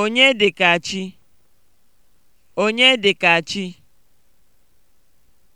Onye Onye dịka dịka (Onyedịkachi)